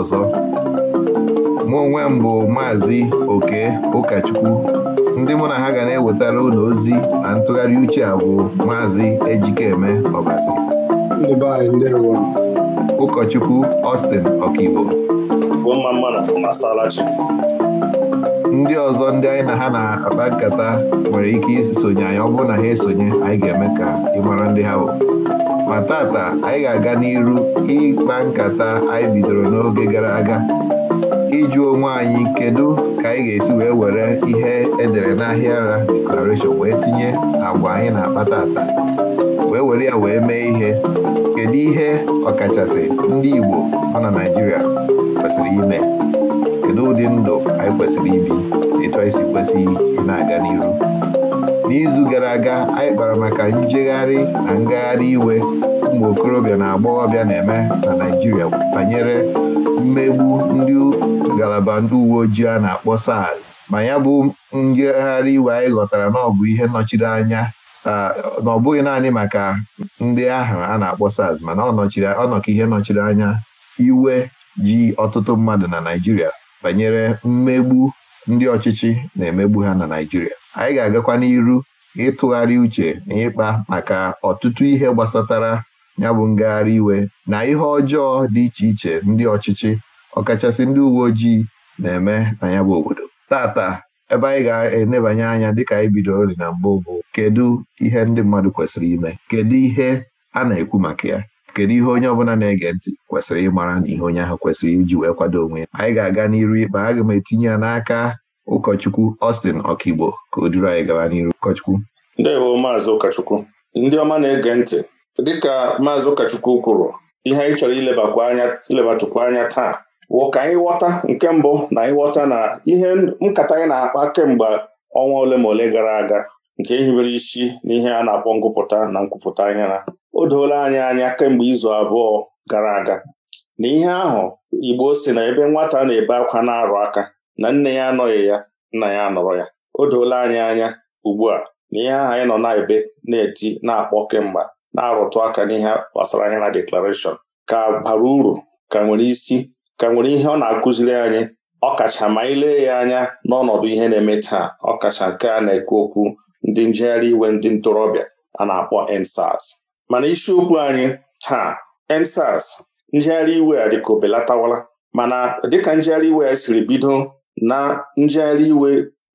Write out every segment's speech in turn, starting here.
ọzọ mụ onwe m bụ maazị oke ụkọchukwu ndị mụ na ha ga na-ewetara ụlọ ozi na ntụgharị uche a bụ maazị ejikeme ọbasi ụkọchukwu Austin ọkaibo ndị ọzọ ndị anyị na ha na-akpa nkata nwere ike isonye anyị ọ bụrụ na ha esonye anyị ga-eme ka ị mara ndị ha bụ ma tata anyị ga-aga n'iru ịkpa nkata anyị bidoro n'oge gara aga ịjụ onwe anyị kedu ka anyị ga-esi wee were ihe edere n'ahịa ara deklarashọn wee tinye agwa anyị na-akpa tata wee were ya wee mee ihe kedu ihe ọkachasị ndị Igbo nọ na Naijiria kwesịrị ime kedu ụdị ndụ anyị kwesịrị ibi etu anyị si kwesị ị na-aga n'iru n'izu gara aga anyị kpara maka njegharị na ngagharị iwe ụmụ okorobịa na agbọghọbịa na-eme na Naijiria banyere mmegbu ndị ngalaba ndị uwe ojii a na-akpọ SARS ma ya bụ njegharị iwe anyị ghọtara na ọ bụ ihe anya na ọ bụghị naanị maka ndị ahụ a na-akpọ SARS mana ọ nọka ihe nọchiri anya iwe ji ọtụtụ mmadụ na Naijiria banyere mmegbu ndị ọchịchị na-emegbu ha na Naịjirịa anyị ga-agakwa n'iru ịtụgharị uche na ịkpa maka ọtụtụ ihe gbasatara ya bụ ngagharị iwe na ihe ọjọọ dị iche iche ndị ọchịchị ọkachasị ndị uwe ojii na-eme na ya bụ obodo tata ebe anyị ga-enebanye anya dịka anyị bidoro na mbụ bụ kedu ihe ndị mmadụ kwesịrị ime kedu ihe a na-ekwu maka ya kedu ihe onye ọbụla na-ege ntị kwesịrị ịmara na ihe onye ahụ kwesịrị iji wee kwado onwe ya anyị ga-aga n'iru ikpe aga m etinye ya n'aka ụkọchukwu Austin Ọkigbo ka o duru anyị gaba n'iru ụkọchukwu ndewo maazị ụkọchukwu ndị ọma na-ege ntị dịka maazị ụkọchukwu kwuru ihe anyị chọrọ ilebatụkwa anya taa wụ ka anyị ghọta nke mbụ na ịghọta na ihe nkata anyị na-akpa kemgbe ọnwa ole ma ole gara aga nke hibere isi n'ihe a na-akpọ ngụpụta na nkwupụta ahịara o doola anyị anya kemgbe izu abụọ gara aga na ihe ahụ Igbo si na ebe nwata na-ebe akwa na-arụ aka na nne ya anọghị ya nna ya anọrọ ya o doola anyị anya ugbu a na ihe ahụ anyị nọ na-ebe na-eti na-akpọ kemgbe na-arụtụ aka n'ihe gbasara anya na deklarashọn ka bara uru ka nwere isi ka nwere ihe ọ na-akụziri anyị ọkacha ma ile ya anya n'ọnọdụ ihe na-eme taa ọkacha nke a na-ekwu okwu ndị njegharị iwe ndị ntorobịa a na-akpọ EndSARS mana isiokwu anyị taa EndSARS njegharị iwe a dịka obelatawala mana dịka njegharị iwe ya siri bido na njegharị iwe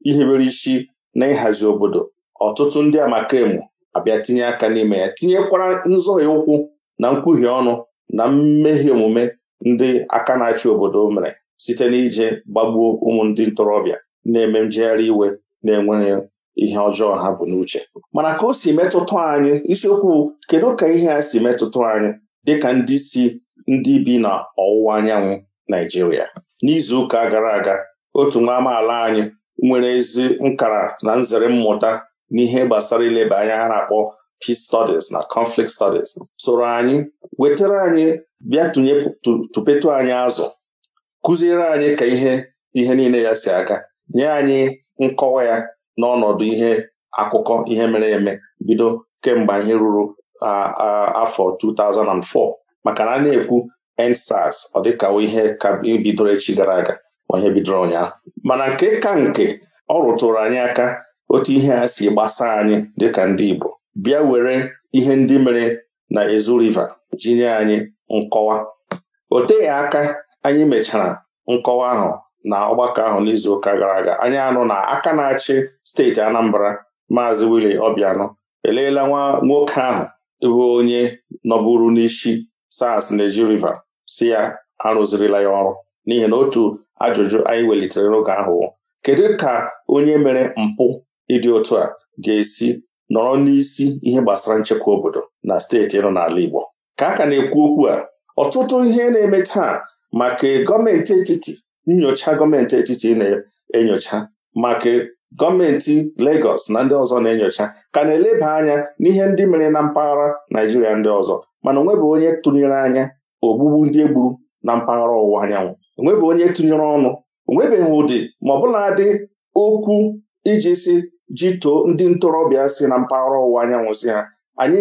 ihibere isi na ịhazi obodo ọtụtụ ndị amakaemu abịa tinye aka n'ime ya tinyekwara ya ụkwụ na nkwuhie ọnụ na mmehie omume ndị aka na-achị obodo mere site n'ije gbagbuo ụmụ ndị ntorobịa na-eme njegharị iwe na-enweghị ihe ọjọọ ha bụ n'uche mana ka o si metụta anyị isiokwu kedu ka ihe a si metụta anyị dịka ndị si ndị bi na ọwụwa anyanwụ Naijiria n'izu ụka gara aga otu nwa amaala anyị nwere ezi nkara na nzere mmụta n'ihe gbasara ileba anya a na-akpọ peace studies na conflict studies soro anyị wetara anyị bịa tụnye tụpetụ anyị azụ kụziere anyị ka ihe ihe niile ya si aga nye anyị nkọwa ya n'ọnọdụ ihe akụkọ ihe mere eme bido kemgbe ihe ruru afọ 2004 maka na a na-ekwu EndSARS ọ dịka ihe bidoro echi gara aga ma ihe bidoro ụnyaahụ mana nke ka nke ọ rụtụrụ anyị aka otu ihe a si gbasaa anyị dịka ndị Igbo bịa were ihe ndị mere na Ezu jinye anyị nkọwa o teghị aka anyị mechara nkọwa ahụ na ọgbakọ ahụ n'izuụka gara aga anyị anụ na aka na-achị steeti Anambra maazị Willie Obiano eleela nwa nwoke ahụ bụ onye nọburu n'isi SARS na-eji river si ya arụzirila ya ọrụ n'ihi na otu ajụjụ anyị welitere n'oge ahụ kedu ka onye mere mpụ ịdị otu a ga-esi nọrọ n'isi ihe gbasara nchekwa obodo na steeti nọ n'ala Igbo ka a ka na-ekwu okwu a ọtụtụ ihe na-eme taa maka gọọmenti etiti nyocha gọọmenti etiti na-enyocha maka gọọmenti Lagos na ndị ọzọ na-enyocha ka na-eleba anya n'ihe ndị mere na mpaghara Naijiria ndị ọzọ mana onwebụ onye tụnyere anya ogbugbu ndị egburu na mpaghara ọwụwa anyanwụ onwebụ onye tụnyere ọnụ onwebeghị ụdị ma bụla dị okwu iji si too ndị ntorobịa si na mpaghara ọwụwa anyanwụ si ha anyị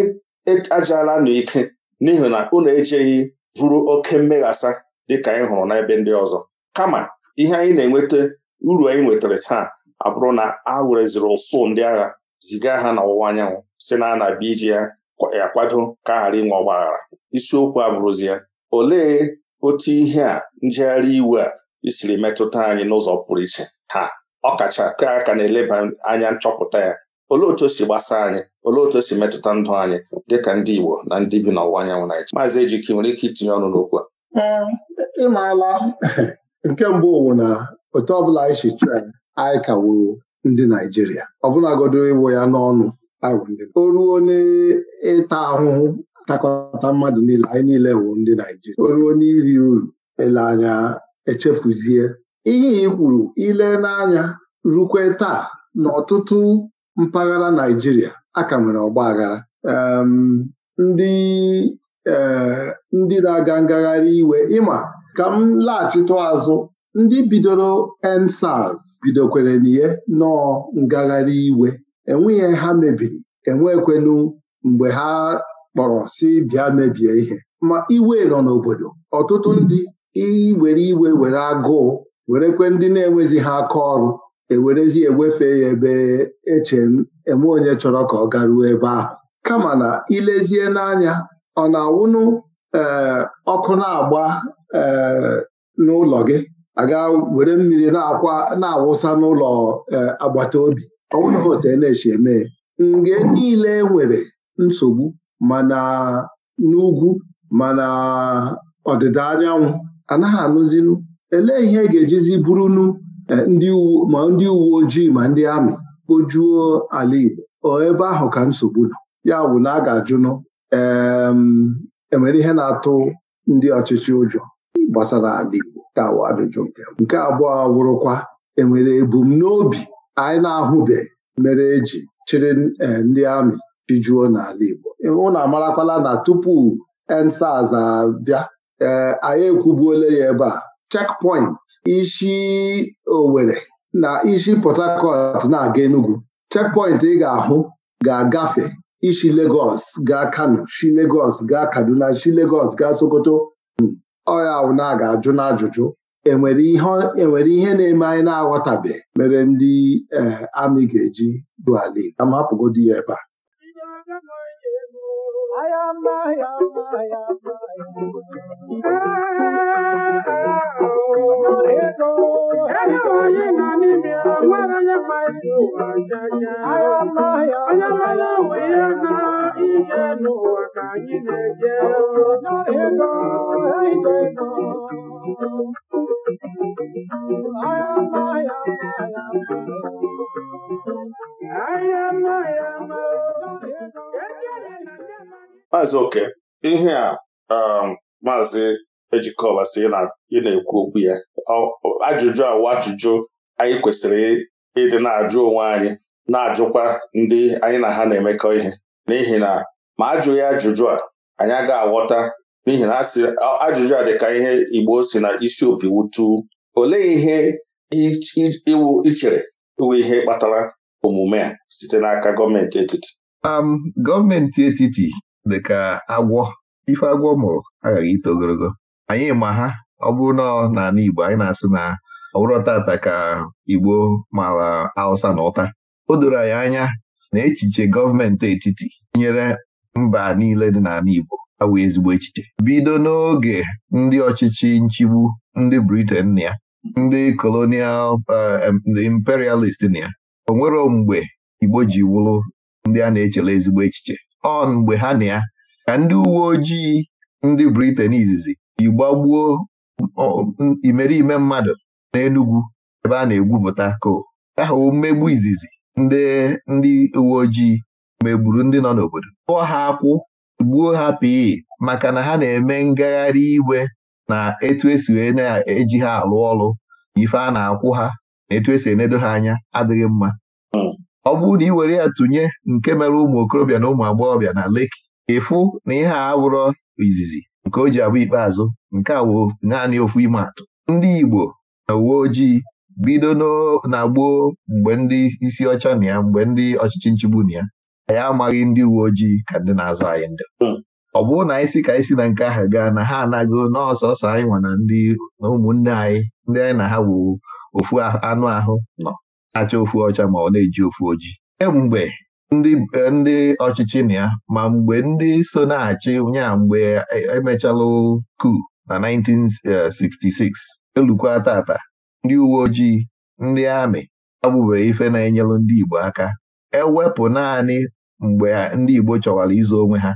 e-, ajaala n'ike n'ihi na unu ejeghị vuru oke mmeghasa dịka anyị hụrụ n'ebe ndị ọzọ kama ihe anyị na-enweta uru anyị nwetara taa abụrụ na a wereziri ụsụ ndị agha ziga ha n'ọwụwa anyanwụ si na na-abịa iji ya akwado ka ghara inwe ọgbaghara aghara isiokwu abụrụzi ya olee otu ihe a njegharị iwe a isiri metụta anyị n'ụzọ pụrụ iche taa ọ kacha ka aka na-eleba anya nchọpụta ya olee otu o si gbasa anyị olee otu o si metụta ndụ anyị dịka ndị Igbo na ndị bi n'ọwụwa anyanwụ Naịjirịa maazị Ejike nwere ike itinye ọnụ n'okwu a nke mbụ wụ na otu ọbụla anyị si chụọ anyị ka ndị Naijiria ọbụlagodi ịwụ ya n'ọnụ o ruo n'ịta ahụhụ takọta mmadụ niile anyị niile wụ ndị Naijiria o ruo n'iri uru ele anya echefuzie ihe i kwuru ile n'anya rukwe taa n'ọtụtụ mpaghara Naijiria a ka nwere ọgba aghara ndị eh, ndị na-aga ngagharị iwe ịma ka m laghachite azụ ndị bidoro EndSARS bidokwere n'ihe nọọ ngagharị iwe enweghị ha mebiri enwekwenu mgbe ha kpọrọ si bịa mebie ihe ma iwe nọ n'obodo ọtụtụ ndị iwere iwe were agụụ werekwe ndị na-enwezi ha aka ọrụ ewerezi ewefe ya ebe eche eme onye chọrọ ka ọ garuo ebe ahụ kama na ilezie n'anya ọ na-awụnụ eh, ọkụ na-agba Eh, n'ụlọ gị aga were mmiri na-awụsa n'ụlọ eh, agbata obi ọ bụrụ na hotel na eche eme nge niile e nwere nsogbu mana n'ugwu mana ọdịda anyanwụ anaghị anụzinu elee ihe e ga-ejizi bụrụnu eh, ma ndị uwe ojii ma ndị amị kpojuo ala Igbo ebe ahụ ka nsogbu nọ ya bụ na a ga-ajụnụ ee enwere ihe na-atụ ndị ọchịchị ụjọ gbasara ala Igbo ka ajụjụ nke nke abụọ awụrụkwa enwere ebumnobi anyị na-ahụbe mere eji chịrị e, ndị amị pijuo n'ala Igbo na amarakwala na tupu EndSARS abịa ee anyị ekwubuola ya ebe a checkpoint isi Owerri na isi Port Harcourt na-aga Enugu checkpoint ị ga-ahụ ga-agafe isi Lagos gaa Kano shi Lagos gaa Kaduna shi legos gaa Sokoto ọya awụna ga-ajụ n'ajụjụ enwere ihe na-eme anyị na-aghọtabe mere ndị amị ga-eji duali ala ya ebe a ebe ya ebe a. ihe n'ụwa ka anyị na-eje ego ide maazị oke ihe a um, maazị ejikọba sị ị na-ekwu okwu ya ajụjụ awa ajụjụ anyị kwesịrị ịdị na-ajụ onwe anyị na-ajụkwa ndị anyị na ha na-emekọ ihe n'ihi na ma ajụghị ajụjụ a anyị agaghị aghọta n'ihi na ajụjụ a dịka ihe Igbo si na isi opi wutu olee ihe iwu ichere iwu ihe kpatara omume a site n'aka gọọmenti etiti um, gọọmenti etiti dị ka agwọ ife agwọ mụrụ aghaghị ito ogologo anyị ma ha ọ bụrụ na n'ala Igbo anyị na-asị na ọ bụrụ tata ka Igbo mara Hausa na ụta o doro anyị anya na echiche gọọmenti etiti nyere mba niile dị n'ala Igbo awụ ezigbo echiche bido n'oge ndị ọchịchị nchigbu ndị Briten na ya ndị Kolonial eh, imperialist na ya o nwero mgbe Igbo ji wụrụ ndị a na-echele ezigbo echiche ọ mgbe ha na ya ka ndị uwe ojii ndị Britain izizi igbagbuo gbagbuo ime mmadụ n'Enugwu ebe a na-egwupụta ko ahụ mmegbu izizi ndị ndị uwe ojii megburu ndị nọ n'obodo kpụọ ha akwụ gbuo ha pii maka na ha na-eme ngagharị iwe na etu esi wee na-eji ha alụ ọrụ ife a na-akwụ ha na etu esi enedo ha anya adịghị mma ọ bụrụ na ị were ya tụnye nke mere ụmụ okorobịa na ụmụ agbọghọbịa na Leki ịfụ na ihe a bụrụ izizi nke o ji abụ ikpeazụ nke a wụ naanị ofu ime atụ ndị Igbo na uwe ojii bido na gboo mgbe ndị isi ọcha na ya mgbe ndị ọchịchị nchigbu na ya anyị amaghị ndị uwe ojii ka ndị na-azụ anyị ndị hmm. ọ bụrụ na anyị si ka anyị si na nke ahụ gaa na ha anago n'ọsọsọ anyị nwa na ndị na ụmụnne anyị ndị anyị na ha bụ ofu anụ ahụ nọ na-acha ofu ọcha ma ọ na-eji ofu ojii kemgbe ndị ọchịchị na ya ma mgbe ndị so na-achị nya mgbe e, e, emechalụ na 1966 elukwa tata ndị uwe ojii ndị amị abụbeghị ife na-enyelụ ndị Igbo aka ewepụ naanị mgbe ndị Igbo chọwara izu onwe ha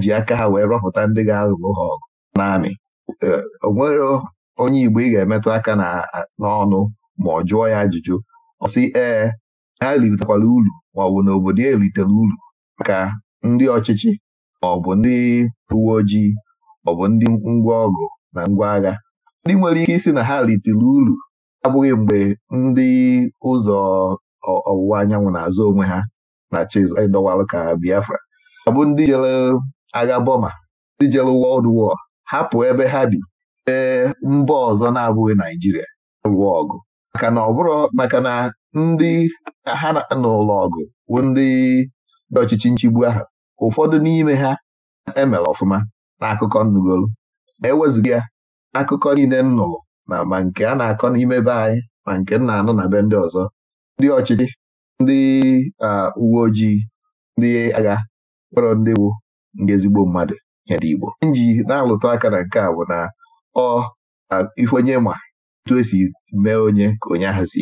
ji aka ha wee rọpụta ndị ga-alụ ha ọgụ n'amị e, onwere onye Igbo ị ga-emetụ aka n'ọnụ ma ọ jụọ ya ajụjụ ọ sị ee ha ritekwala uru maọbụ na obodo ya e eritere uru maka ndị ọchịchị maọbụ ndị uwe ojii maọbụ ndị ngwa ọgụ na ngwa agha ndị nwere ike isi na ha ritere uru abụghị mgbe ndị ụzọ ọwụwa anyanwụ na-azụ onwe ha na Chiz ịdọwalụ ka Biafra abụ ndị jere agha Boma, ndị jere Wọld War hapụ ebe ha bi ee mba ọzọ na-abụghị Naijiria lụọ ọgụ maka na ọ bụrụ maka na ndị ha n'ụlọ ọgụ bụ ndị ọchịchị nchigbu ahụ ụfọdụ n'ime ha emere ọfụma n'akụkọ nnugolu ma ewezuga ya akụkọ niile nnụrụ na ma nke a na-akọ n'ime be anyị ma nke m na-anụ na be ndị ọzọ ndị ọchịchị ndị uwe ojii ndị agha kpọrọ ndị wu ndị ezigbo mmadụ nyere Igbo nji na alụtọ aka na nke a bụ na ọ ife onye ma etu esi mee onye ka onye ahụ si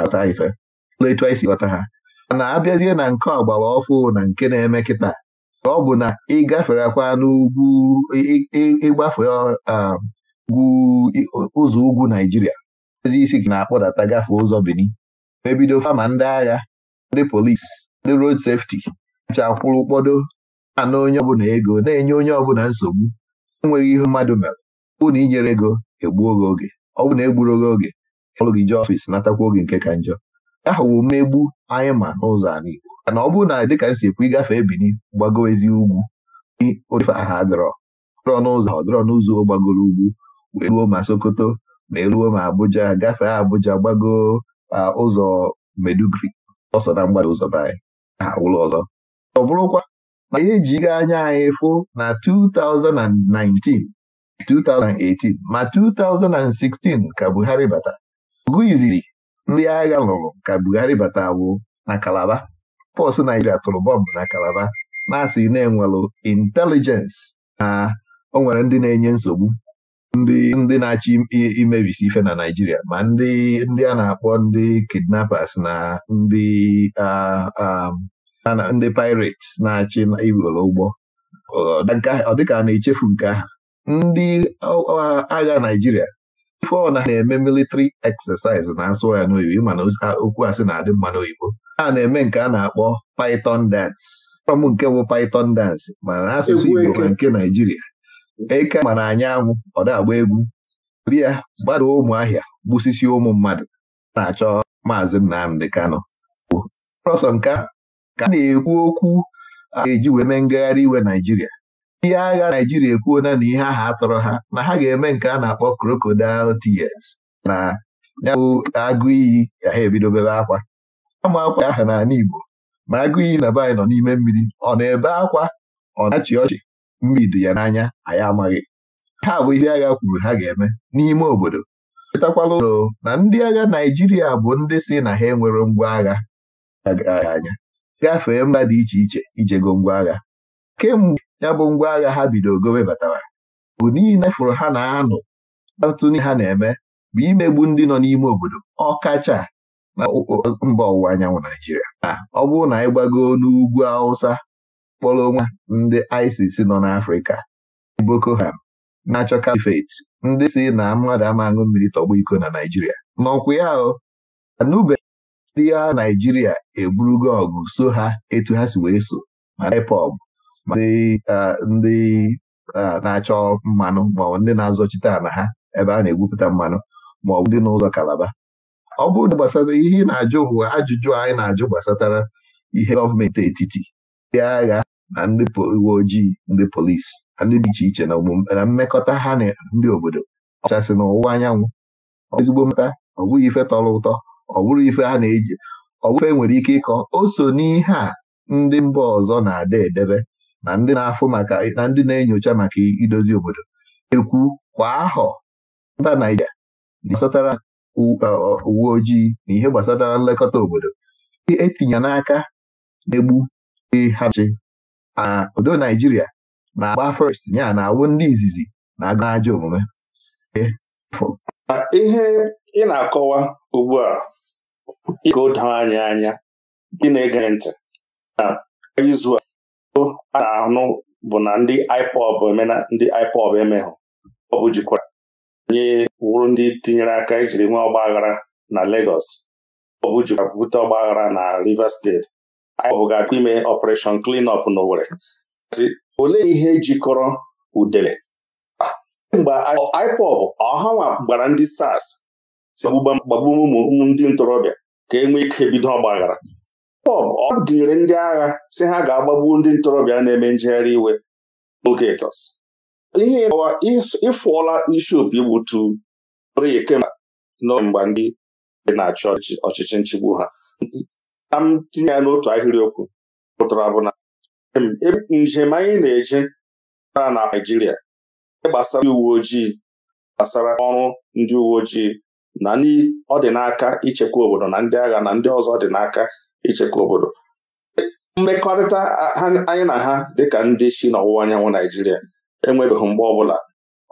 ata ife etu anyị si ghọta ha mana abịazie na nke ọgbara ọfụ na nke na-eme kịta ọ bụ na ịgafere kwa n'ugwu ịgbafe ụzọ ugwu Naijiria ezi isi na-akpọdata gafee ụzọ Benin ebido fama ndị agha ndị polisi ndị rod sefti acha kwụrụ ụkpọdo ana onye ọbụla ego na-enye onye ọbụla nsogbu enweghị ihe mmadụ mere ụna inyere ego egbuo gị oge ọ bụ na egburo gị oge ọrụ gị jee ọfịs natakwa oge nke ka njọ ahụ mmegbu anyị ma n'ụzọ anụ Igbo ana ọ bụrụ na dịka nsikwu ịgafe ebini gbago ugwu ụdịfe aha dọrọ dọrọ n'ụzọ ọ dọrọ n'ụzọ gbagoro ugwu wee ruo ma Sokoto ma eruo ma Abuja gafee Abuja gbagoo ụzọ Medugri ọsọ na mgbada ụzọ anyị ha ụlọ ọzọ ọ bụrụkwa na ihe ejighị anya anyị fụ na 2019 2018 ma 2016 ka Buhari bata ogu izizi ndị agha lụrụ ka Buhari bata bụ na Kalaba pọstụ Naijiria tụrụ bọmbụ na Kalaba na-asị na-enwelụ intelijensị na o nwere ndị na-enye nsogbu ndị ndị na-achị imebisi ife na Naijiria ma ndị ndị a na-akpọ ndị kidnappers na ndị ndị pirates na-achị iwere ụgbọ ọ dịka a na-echefu nke aha ndị agha Naijiria. ife ọ na-eme militri exercise na-asụ ya n'oyibo mana okwu asị na-adị mma n'oyibo a na-eme nke a na-akpọ python dance ọm nke bụ python dance ma asụsụ Igbo na nke Naijiria. eke mana anyị anwụ ọ na-agba egwu ụdị ya gbada ụmụahịa gbusisi ụmụ mmadụ na-achọ maazị Nnamdị Kano. prọsọ nke ka na-ekwu okwu a eji wee mee ngagharị iwe Naijiria ihe agha Naijiria ekwuona na ihe aha atọrọ ha na ha ga-eme nke a na-akpọ Krokodil tears na ya agụ iyi ya ha ebidobebe akwa ama akwa aha n'ala Igbo ma agụ iyi na be anyị nọ n'ime mmiri ọ na-ebe akwa ọ na-achị ọchị mbido ya n'anya anyị amaghị ha bụ ihe agha kwuru ha ga-eme n'ime obodo chetakwala ụlọ na ndị agha Naijiria bụ ndị si na ha enwere ngwa agha anya gafee mba dị iche iche ijego ngwa agha kemgbe ya bụ ngwa agha ha bido gowe batara bụ niile fụrụ ha na-anụ atụni ha na-eme bụ imegbu ndị nọ n'ime obodo ọkacha na mba ọwụwa anyanwụ Naijiria. Ah, ọ bụrụ na anyị gbagoo n'ugwu Awụsa kpọrọ onwe ndị isis nọ n'Afrịka Boko Haram na-achọ kalifet ndị si na mmadụ ama aṅụ mmiri tọgbọ iko na Naijiria. n'ọkwa ya o anụbeghị ya Naijiria eburugo ọgụ so ha etu ha si wee so ma IPOB ma ndị na-achọ mmanụ maọbụ ndị na-azọchite ala ha ebe a na-egwupụta mmanụ maọbụ ndị n'ụzọ Kalaba ọ bụrụ na gbasara ihe ị na-ajụ ajụjụ anyị na-ajụ gbasatara ihe gọọmenti etiti ndị agha na ndị uwe ojii ndị polisi na ndị dị iche iche na mmekọta ha na ndị obodo ọchasị na ọwụwa anyanwụ ezigbo mmeta ọ bụghị ife tọrọ ụtọ ọ bụrụ ife ha na-eji ọ bụrụ ife nwere ike ịkọ o so n'ihe a ndị mba ọzọ na-ada edebe na ndị na-afụ maka na ndị na-enyocha maka idozi obodo ekwu kwa ahọ mba Naịjirịa na gbasatara uwe ojii na ihe gbasatara nlekọta obodo etinye n'aka na-egbu e ha chi na odo Naijiria na-agba first ya na-awụ ndị izizi na agụ ajọ omume ihe ị na-akọwa ugbu a ịga doo anya anya ndị na-ege ntị na izu a na anụ bụ na ndị IPOB emena ndị IPOB emehụ ọ bụ jikwara onye wụrụ ndị tinyere aka ijiri nwa ọgba aghara na Lagos ọ bụ jikwara bute ọgbaghara na Rivers steeti anyị ga akpa ime ọpụreshọn klin ọp olee ihe jikọrọ udele mgbe IPOB ọhanwa gbara ndị SARS gbagbu ụmụ ndị ntorobịa ka e nwee ike bido ọgbaghara IPOB ọ dịnyere ndị agha si ha ga-agbagbu ndị ntorobịa na-eme njegharị iwe ogetọs ihe ịfụọla isi opi igbutu kemgbe ndị na-achọ ọchịchị nchigbu ha ka m tinye ya n'otu ahịrịokwu pụtara bụ na njem anyị na-eje na Naijiria gbasara ndị uwe ojii gbasara ọrụ ndị uwe ojii na ndị ọ dị n'aka ichekwa obodo na ndị agha na ndị ọzọ dị n'aka ichekwa obodo mmekọrịta anyị na ha dịka ndị si n'ọwụwa anyanwụ Naijiria enwebeghị mgbe bụla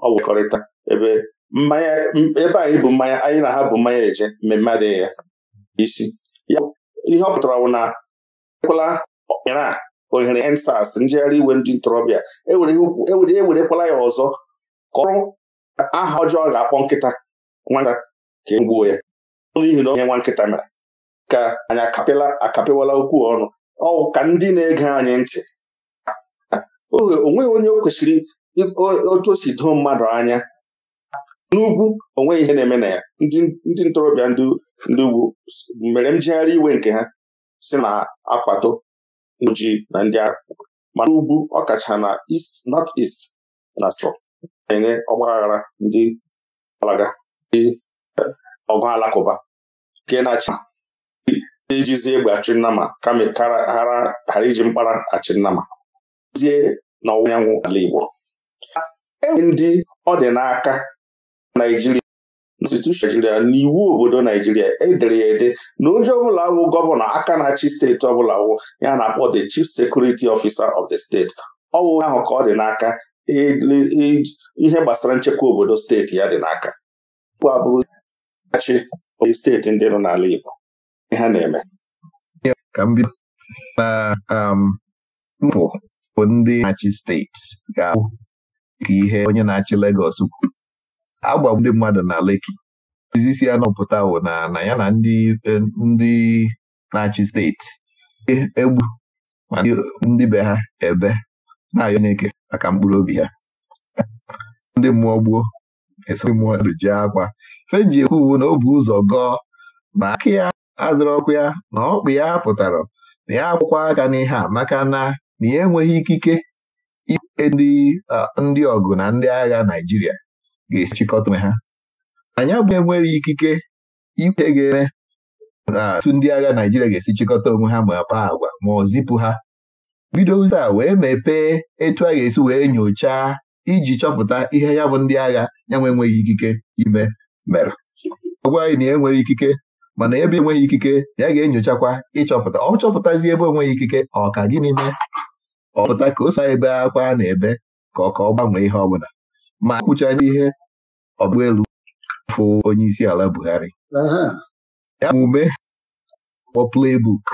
ọ bụ mmekọrịta ebe mmanya ebe anyị bụ mmanya anyị na ha bụ mmanya eje mmemme adịghị ya isi ihe ọ pụtara wụ na ekwela Iran ohere EndSARS njegharị iwe ndị ntorobịa ewerekwala e e ya ọzọ ka ọrụ aha ọjọọ ga-akpọ nkịta nwata ka e gbuo ya n'ihi na onye nwa nkịta mere ka anyị akapịwala okwu ọnụ ọ ka ndị na-ege anyị ntị onweghị onye o kwesịrị otu o si doo mmadụ anya n'ugwu onweghị ihe na-eme na ya ndị ntorobịa ndị ugwu mere njegharị iwe nke ha si na akwato ji na ndị agha ma n'ugwu ọkacha na East North East na sọ na-enye ọgbaghara ndị alaga ndị eh, ọgụ alakụba nke na-achị ijizi egbe achị kama ghara iji mkpara achị nnama zie ọwụwa anyanwụ ala Igbo enwe ndị ọ dị n'aka naijiria konstitushọn naijiria na iwu obodo naijiria edere ya ede na onye ọbụla wụ gọvanọ aka na-achị steeti ọbụla wụ ya na-akpọ the chief security officer of the state ọ ahụ ka ọ dị n'aka e, e, ihe gbasara nchekwa obodo steeti ya dị n'aka abụrụ steeti ndị nọ n'ala Igbo ha na-eme ka um, bụ ndị na steeti ga-abụ ka ihe onye na-achị Legos kwuru agbagbu ndị mmadụ na Leki izisi ya nọpụta wụ na na ya na ndị e, ndị na-achị steeti e, egbu ma ndị be ha ebe na-ayọ n'eke maka mkpụrụ obi ha ndị mmụọ gbuo esiri mmụọ e ji akwa fenji ekwu uwu na o bu ụzọ gọọ na aka ya adịrọ ọkụ ya na ọkpụ ya pụtara na ya akwụkwọ aka n'ihe a maka na na ya enweghị ikike ndị ọgụ na ndị agha Naijiria. ga-esi chịkọta onwe ha anyị abụghị enwere ikike ikwe ga-eme na atụ ndị agha Naijiria ga-esi chịkọta onwe ha ma kpaa agwa ma ọ zipụ ha bido ụzọ a wee mepee etu a ga-esi wee nyochaa iji chọpụta ihe ya bụ ndị agha ya nwe enweghị ikike ime mere ọ gwa anyị na enwere ikike mana ebe enweghị ikike ya ga-enyochakwa ịchọpụta ọ chọpụtazi ebe enweghị ikike ọ ka gịnị mee Ọpụta ka o so ebe akwa na-ebe ka ọ ka ọ gbanwee ihe ọ bụla ma kwụchaga ihe ọbụelu fụ onye isi ala Buhari ya omume kpọ playbook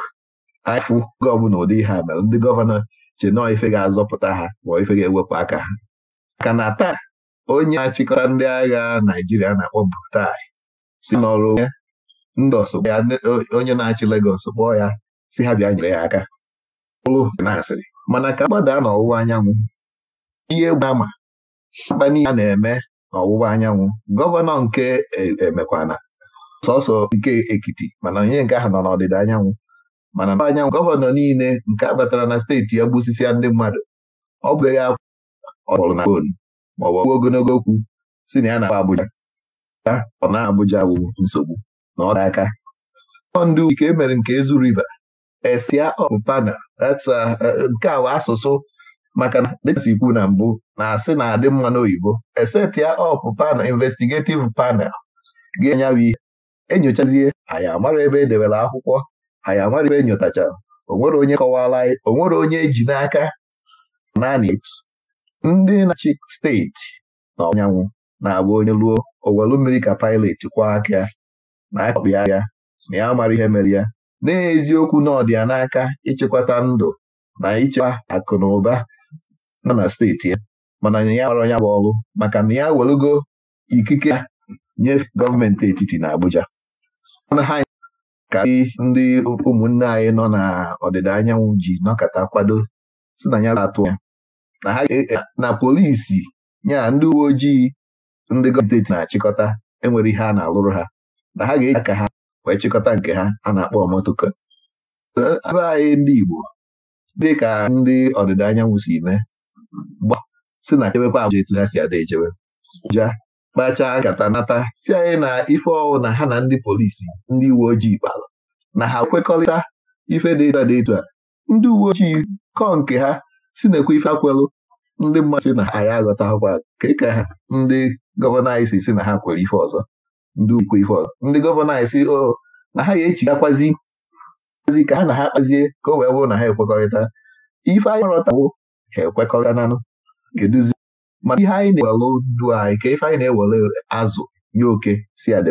anyịfụ oge ọbụla ụdị ha mere ndị gọvanọ che nọọ ife ga-azọpụta ha ma ife ga-ewepụ aka ha ka na taa onye na-achịkọta ndị agha Naijiria na-akpọ Buhari si n'ọrụ ndị ọsọ ya onye na-achị Legọs kpọọ ya si ha bịa nyere ya aka ụlụ na asịrị mana ka mgbada n'ọwụwa anyanwụ ihe gba ama mkpani a na-eme n'ọwụwa anyanwụ gọvanọ nke emekwana e, sọsọ nke Ekiti mana onye nke ahụ nọ n'ọdịda anyanwụ mana mba anyanwụ gọvanọ niile nke abatara na steeti ya gbusisi ndị mmadụ ọ bụghị akwụkwọ na fon maọbụ ọgwụ ogologo okwu si na ya na Abuja ọ na Abuja bụ nsogbu na ọ aka ndị ike emere nke Ezu Riva, esia ọpụpana nke a asụsụ maka na dịka si na mbụ na-asị na-adị mma n'oyibo eseti ya ọpụ panel investigative panel ga-enyawa ihe enyochazie anyị amara ebe edebere akwụkwọ anyị amara ebe enyotachara onwere onye kọwara onwere onye eji n'aka naanị ndị na-achị steeti na ọnyanwụ na-abụ onye ruo owelu mmiri ka pilot kwa aka na akọkpị na ya mara ihe mere ya n'eziokwu na ọ dị ya n'aka ịchịkwata ndụ na ịchekwa akụ na ụba nọ na steeti ya mana ya gbara ya bụ ọrụ maka na ya welugo ikike ya nye gọọmenti etiti na Abuja mana ha ka ndị ụmụnne anyị nọ na ọdịda anyanwụ ji n'ọkata kwado si na ya atụ ya na ha e, na polisi ya ndị uwe ojii ndị gọọmenti na-achịkọta enwere ihe a na-alụrụ ha na ha ga-eji aka ha wee chịkọta nke ha a na-akpọ ọmotoko ebe anyị ndị Igbo dị ka ndị ọdịda anyanwụ si mee gba si na chebekwa abụja etu ha si ada echebe ja kpachaa nkata nata si anyị na ife ọwụ na ha na ndị polisi ndị uwe ojii kpara na ha kwekọrịta ife dị a dị etu a ndị uwe ojii kọọ nke ha si na-ekwe ife akwelụ ndị mmadụ si na anyị aghọta akwụkwọ ka ka ndị gọvanọ anyị si na ha kwere ife ọzọ ndị ukwe ife ọzọ ndị gọvanọ anyị si o oh, na ha ga-echigakwazi ka ha na ha kpazie ka o wee bụrụ na ha ekwekọrịta ife anyị rọtawo ha ekwekọrịtananụ kedụzi Ma ihe anyị na-ewele ndụ anyị ka ife anyị na ewere azụ ya oke si adị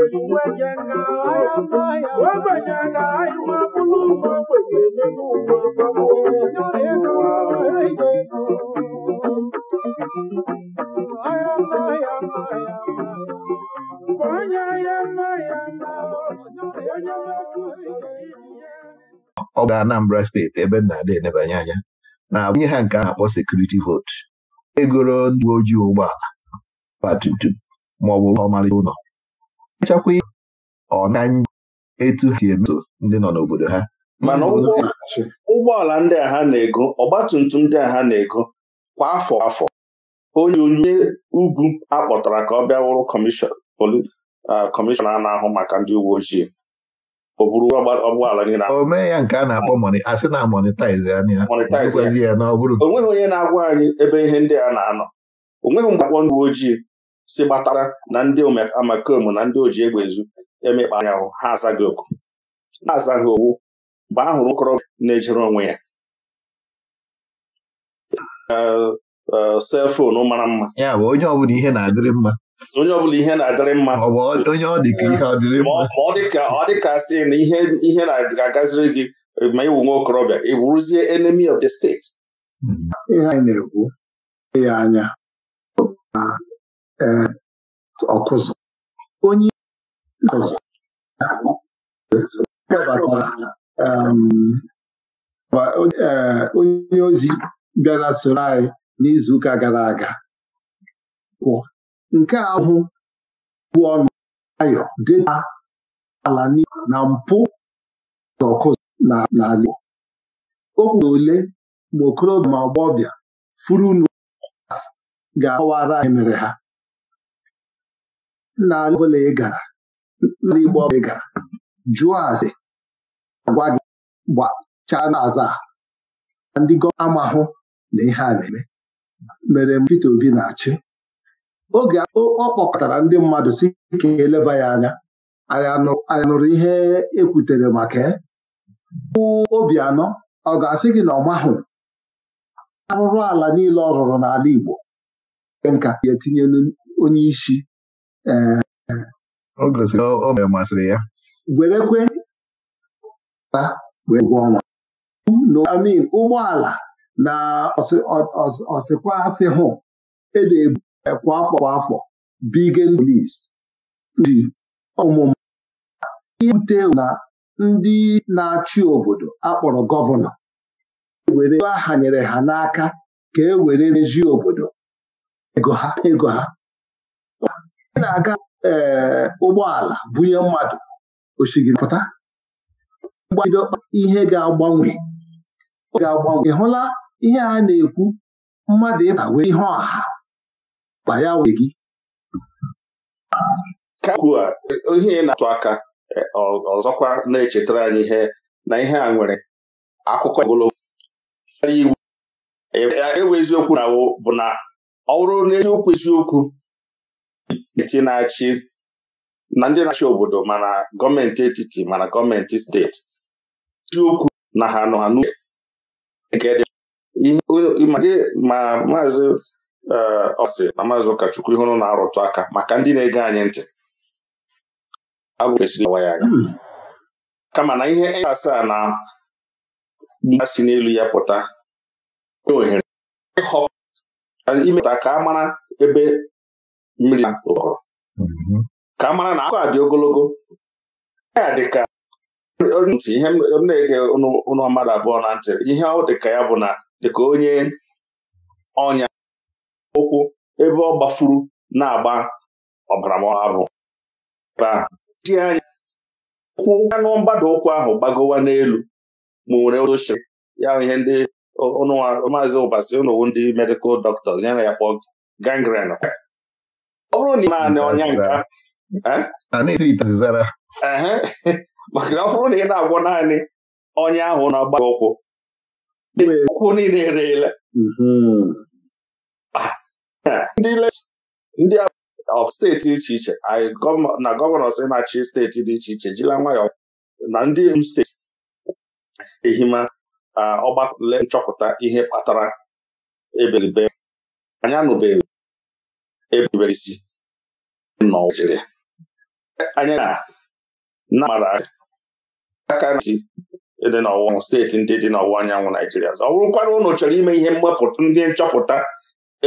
na ọ bụ Anambra steeti ebe m na adị enebanye anya na-abụnye ha nke a na-akpọ sekuriti votu egoro ndị uwe ojii ụgbọala ọgba tum tum ma ọ bụ ọmarịcha ụlọ achakwa ọ na etu ha si emeso ndị nọ n'obodo ha mana ụgbọala ndị a ha na-ego ọgbatumtum ndị a ha na-ego kwa afọ afọ onye onye ugwu akpọtara ka ọ bịa wụrụ kọmishọna na-ahụ maka ndị uwe ojii o ya nke a na-akpọ a sị na monetize ya ya na ọ bụrụ onweghị onye na-agwa anyị ebe ihe ndị a na-anọ onweghị mgbe akpọ ndị uwe ojii si gbatara na ndị amakom na ndị oji egbe ezu emekpa ahụ ha azaghị oku ha azaghị owu mgbe a hụrụ okorobịa na-ejere onwe ya selfonu mara mma ya bụ onye ọbụla ihe na-adịrị mma onye ọbụla ihe na-adịrị mma ma ọ dị ka ọ dịka sị na ihe na-agaziri gị ma ịwụ nwa okorobịa ị bụrụzie enemy of the state hmm. ihe anyị na-ekwu ya anya ọkụzụ onye onye ozi bịara soro anyị n'izuụka gara aga kwụ nke ahụ bụ ọnụ ayọ dịta ala na mpụ ọkụzụ n'ala Igbo o ole ma okorobịa ma ọgbọbịa furu ga-akọwara anyị mere ha nna ọbụla ị gara nna Igbo ọbụla ị gara jụọ ase agwa gị gbachaa aza na ndị gọọmenti amahụ na ihe a na-eme mere Peter Obi na-achị oge ọ kpọkọtara ndị mmadụ si ka eleba ya anya anyị nụrụ ihe ekwutere maka bụ obi anọ ọ ga-asị gị na ọ mahụ arụrụ ala niile ọ rụrụ n'ala Igbo nke nka ga etinyelu onye isi ọ gosiri masịrị ya werekwe ụgwọ ọnwa amin ụgbọala na ọsịkwa asị hụ edebu e kwa afọ kwa afọ bigen polis ndị ọmụmụ na ndị na-achị obodo akpọrọ gọvanọ were nyere ha n'aka ka e were reji obodo ego ha na-aga ee ụgbọala bunye mmadụ osigipụta mgbaideọkpa ihe ga-agbanwe ga-agbanwe hụla ihe a na-ekwu mmadụ ịta wee ihe ọha ma ya wee gị kakwua ihe na-atụ aka ọzọkwa na-echetara anyị ihe na ihe a nwere akụkọ ogologo iwu ewe eziokwu na bụ na ọ bụrụ n'eziokwu eziokwu etiti na-achị na ndị na-achị obodo mana gọọmenti etiti mana gọọmenti steeti okwu na ha nọ ha n'uche ma maazị ọsị eh, na maazị ụkọchukwu ihụrụ na-arụtụ aka maka ndị na-ege anyị ntị ya anya. Hmm. kama na ihe asaa na mgba si n'elu ya pụta ohere ịhọpụta ka a mara ebe mmiri ụkọrọ mm-hmm. ka a mara na akụkọ a dị ogologo ya dị ka ntị ihe m na-ege ụlọ mmadụ abụọ na ntị ihe ọ dị ka ya bụ na dịka onye ọnya ụkwụ ebe ọ gbafuru na-agba ọbara mabụ ji anya ụkwụ anụ mgbada ụkwụ ahụ gbagowa n'elu ma nwere oche ya ihe ndị maazị ụbasi ụnụwu ndị medikal dọktọs ya na ya kpọọ gangrene ọ bụrụ na ị na ọnya nka maka na ọ bụrụ na ị na-agwọ naanị ọnya ahụ na-agba ụkwụ ụkwụ niile ereela mm-hmm. ah, ndị steeti iche iche na gọvanọ si na-achị steeti dị iche iche jila nwayọọ na ndị steeti ehima ah, ọgbakọle nchọpụta ihe kpatara eberibe anya nụbeghị erubere isi n'ọwa Naịjirịa anyị na mara aka ntị e dị n'ọwụwa steeti ndị dị n'ọwụwa anyanwụ Naijiria ọ bụrụkwana ụnụ chọrọ ime ihe mwepụta ndị nchọpụta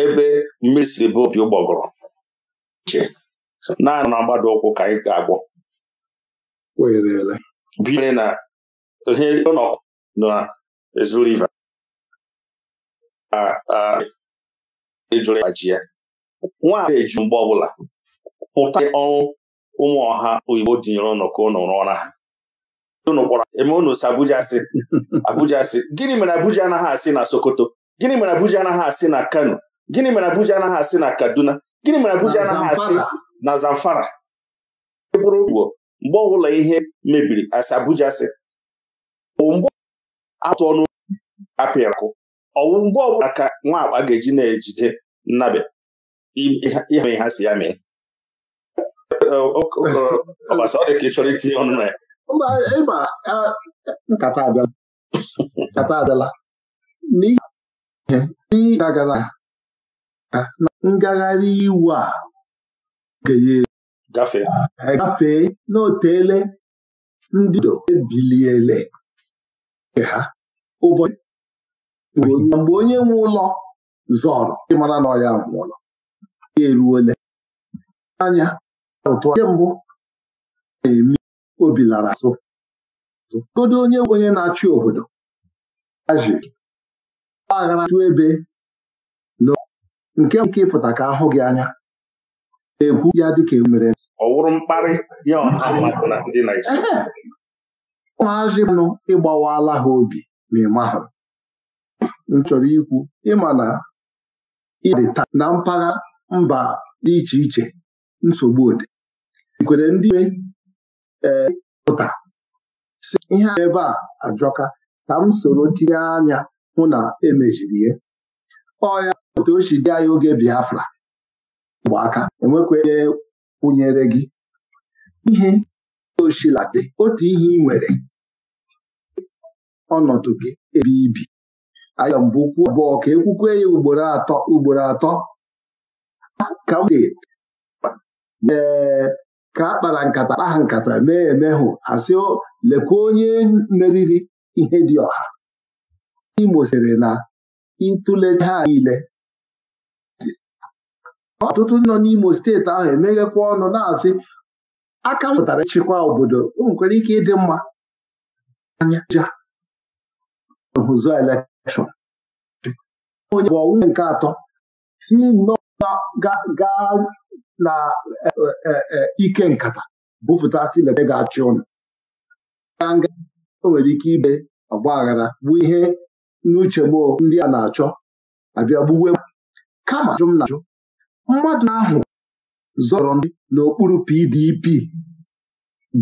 ebe mmiri siri bụ opi ụgbọgụrụ uche naanị na mgbada ụkwụ ka anyị ga-agwọ binyere na ihe ọnọkụ na ezu riva ịjụrụ e ya ji ya nwaanyị eji mgbe ọbụla pụta ọrụ ụmụ ọha oyibo dinyere ụnụ ka ụnụ rụọ ọra ha unu kpọrọ eme unu si Abuja si Abuja si gịnị mere Abuja anaghị asị na Sokoto gịnị mere Abuja anaghị asị na Kano gịnị mere Abuja anaghị asị na Kaduna gịnị mere Abuja anaghị asị na Zamfara bụrụ ugbo mgbe ọbụla ihe mebiri asị Abuja si mgbe atụ ọnụ apịakụ ọwụ mgbe ọbụla ka nwa akpa ga-eji na-ejide nnabe ihe ihe ha si ya mee ọbasa ka ị chọrọ itinye ọnụ na ya nkata abịala nkata abịala n'ihi gara ngagharị iwu a gafee n'otele ndị do ebiliele ha ụbọchị mgbe onye nwe ụlọ zọrọ ịmara na ọya ya eruola anya rụtụ nke mbụ na-eme obi lara azụ godo onye onye na-achị obodo aji aghara tụ ebe na nke nke ịpụta ka ahụ gị anya na-ekwu ya dịka emere ọ wụrụ mkparị ya ụmụazị nụ ịgbawala ha obi ma ịmahụ m chọrọ ikwu ịma na ide taa na mpaghara mba dị iche iche nsogbu ode ikwere ndị nwe eh, pụta si ihe ebe a ajọka ka m soro tinye anya hụ na emejiri ya ọya otu o dị anyị oge Biafra bụ aka enwekwenye kwụnyere gị ihe oshilade otu ihe ị nwere ọnọdụ gị ebe ibi ayọ mbụ abụọ ka ekwukwe ya ugboro atọ ugboro atọ ka dị ee ka a kpara nkata ha nkata mee emehụ asị lekwa onye meriri ihe dị ọha Imo sịrị na ịtụle ha niile ọtụtụ nọ n'Imo steeti ahụ emeghekwa ọnụ na-asị aka mụtara ịchịkwa obodo o nwekwara ike ịdị mma anya hụzọ elekshọn onye bụ ọnwụ nke atọ hmm, gaa na e, e, e, ike nkata bufụtasị lebe ga-achị ụnụ gaa o nwere ike ibe ọgba aghara bụ ihe n'uche gboo ndị a na-achọ abịa gbuwe kama jụ na ajụ mmadụ ahụ zọrọ ndị n'okpuru PDP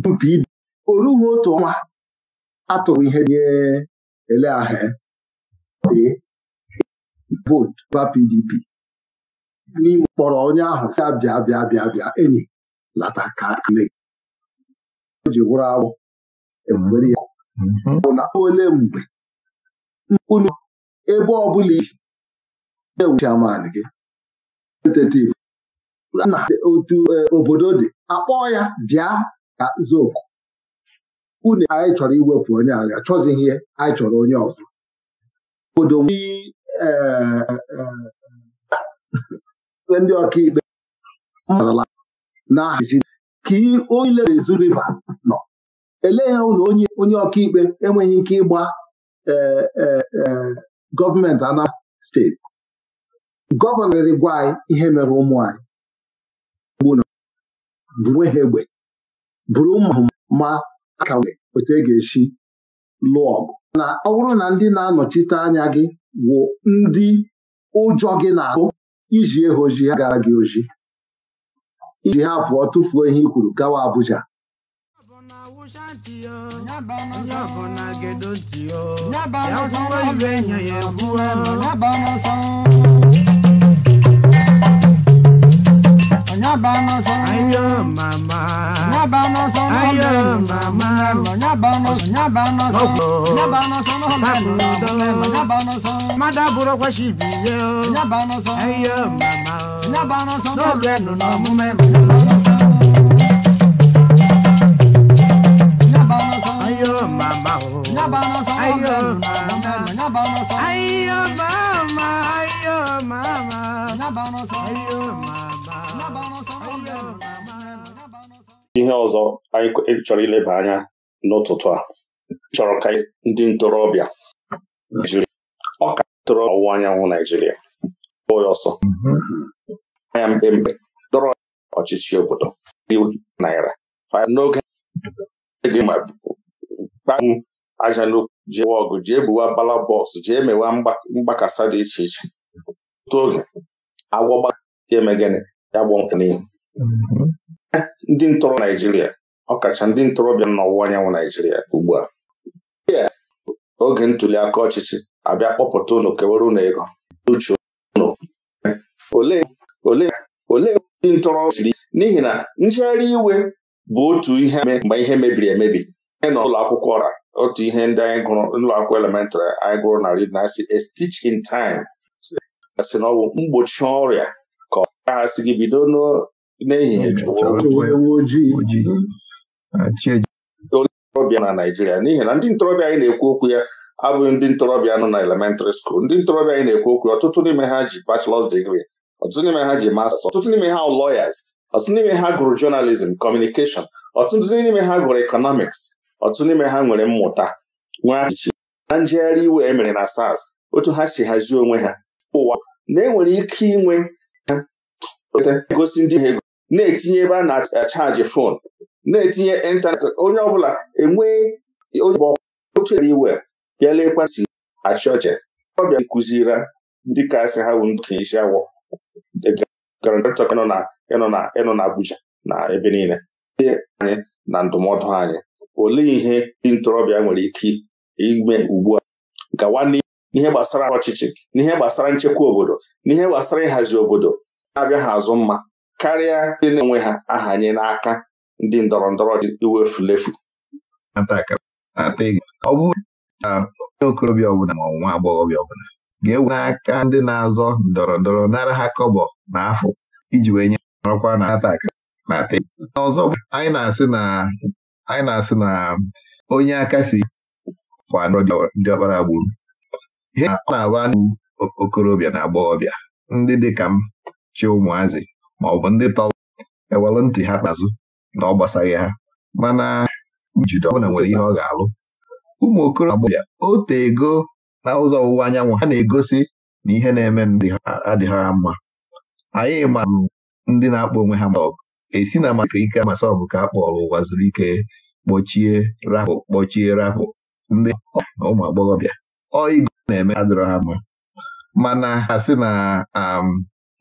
bụ PDP o otu ọnwa atụrụ ihe nye ele ahụ ba PDP n'ime kpọrọ onye ahụ si abịa bịa bịa bịa enyi lata ka nne gị ji wụrụ agbụ ewere ya bụ na ole mgbe unu ebe ọ bụla ọbụla iji chairman gị tentative na otu obodo e, dị akpọọ ya bịa ka zoku unu anyị chọrọ iwepụ onye agha, chọzighị ihe anyị chọrọ onye ọzọ obodo ndị ọkaikpe na ka onye lere ezu riva nọ elee ha ụlọ onye ọkaikpe enweghị ike ịgba e, e, e, gọọmenti Anambra steeti gọvanọ gwa anyị ihe mere ụmụ anyị buru ha egbe bụrụ ụmụ ma aka otu e ga-esi lụọ ọgụ na ọ bụrụ na ndị na-anọchite anya gị wụ ndị ụjọ gị na-ahụ iji ha oji ha gara gị oji iji ha pụọ tụfuo ihe i kwuru gawa Abuja ya nyabano son ayo mama ayo mama ayo mama mama ihe ọzọ anyị chọrọ ileba anya n'ụtụtụ a chọrọ ka ndị ntorobịa Naijiria ọ ka ntorobịa ọwụwa anyanwụ Naijiria kpọọ ya ọsọ mm-hmm. anya mkpemkpe dọrọ ọchịchị obodo naira n'oge gbawu aja n'okwu jee ọgụ jee buwa bala bọksụ jee mewa mgbakasa dị iche iche otu oge agwọgba ya eme gịnị ya gbọnkwụ n'ihu mm-hmm. ndị ntọrọ Naijiria ọkacha ndị ntorobịa n'ọwụwa anyanwụ Naijiria ugbu a oge ntuli aka ọchịchị abịa kpọpụta ụnụ kewere unu ego uche unu olee ndị ntọrọ siri n'ihi na njegharị iwe bụ otu ihe mgbe ihe mebiri emebi na ụlọ akwụkwọ ọra otu ihe ndị anyị gụrụ ụlọ akwụkwọ elementrị anyị gụrụ na rid na asị a in time si na ọ mgbochi ọrịa ka ọ ha si gị bido n'ehihie na naijiria n'ihi na ndị ntorobịa anyị na-ekwu okwu ya abụghị ndị ntorobịa nọ na elementrị skuul ndị ntorobịa anyị na-ekwu okwu ọtụtụ n'ime ha ji bachelọs digri ọtụtụ n'ime ha ji masters ọtụtụ n'ime ha lọyas ọtụtụ n'ime ha gụrụ jọnalizim kọmunikeshọn ọtụtụ n'ime ha gụrụ ekọnọmiks ọtụtụ n'ime ha nwere mmụta nwee na njegharị iwe e mere na sas otu ha si hazie onwe ha ụwa na enwere ike inwe egosi ndị ha na-etinye ebe a na-achaji fon na-etinye ịntanetị onye ọbụla enwee onye otu ere iwe bịala lekwa si achị ọchị ọ bịa kụzira ndị kasị ha bụ ndị isi awọ ịnọ na Abuja na ebe niile anyị na ndụmọdụ anyị olee ihe ndị ntorobịa nwere ike ime ugbu a gawa n'ihe gbasara ọchịchị n'ihe gbasara nchekwa obodo n'ihe gbasara ịhazi obodo na-abịa ha azụ mma karịa ndị na-enwe ha ahanye n'aka ndị ndọrọ ndọrọ iwefulefu ọ bụrụ na okorobịa ọbụla ma ọnwa agbọghọbịa ọbụla ga-ewe n'aka ndị na-azọ ndọrọ ndọrọ nara ha kọbọ na afọ iji wee nye ọkwa na ataka na ọzọ anyị na-asị na onye aka si kwa ndị ọkpara gburu ihe ọ na-agba ndị okorobịa na agbọghọbịa ndị dị ka m chi ụmụazị ma ọ bụ ndị tọrọ ewelụ ntị ha kpazụ na ọ gbasaghị ha mana njide ọbụla nwere ihe ọ ga-alụ ụmụ Okoro ya. ote ego na ụzọ ọwụwa anyanwụ ha na-egosi na ihe na-eme ndị adịghị ha mma anyị ma ndị na-akpọ onwe ha masọbụ esi na maka ike masọbụ ka a kpọrọ ụwa zuru ike kpọchie rapụ kpọchie rapụ ndị ụmụ agbọghọbịa ọigo na-eme adịrọ ha mma mana ha sị na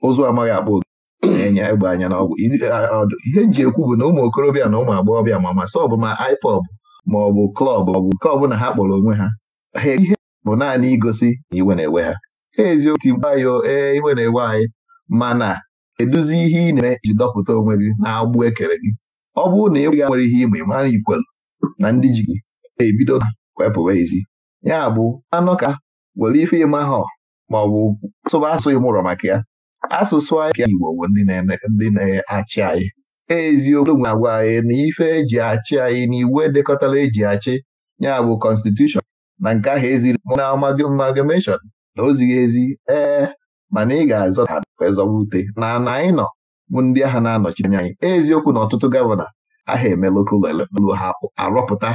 ụzọ amaghị akpa oge na-enye egbe anya n'ọgwụ ihe nji ekwu bụ na ụmụ okorobịa na ụmụ agbọghọbịa ma masị sọ bụ ma ma ọ bụ klọb ma ọ bụ nke na ha kpọrọ onwe ha e, ihe bụ naanị igosi na iwe na-ewe ha eziokwu ti mkpa yo ee iwe na-ewe anyị mana eduzi ihe ị na-eme iji dọpụta onwe gị na-agbụ ekere gị ọ bụrụ na ịgwa nwere ihe ịma mara ikwelu na ndị ji gị na-ebido na wepụwa ezi ya bụ anọ ka were ife ịma ha ma ọ bụ sụba asụ maka ya asụsụ anyị Igbo bụ ndị na-achị anyị eziokwu nwe agwa anyị na ife eji achị anyị na iwu edekọtara eji achị ya bụ kọnstitushọn na nke ahụ eziri na amalgamation na ozighị ezi ee mana ị ga-azọta ezọwute na na anyị nọ bụ ndị agha na-anọchi anya anyị eziokwu na ọtụtụ gọvanọ aha eme lokal hapụ arọpụta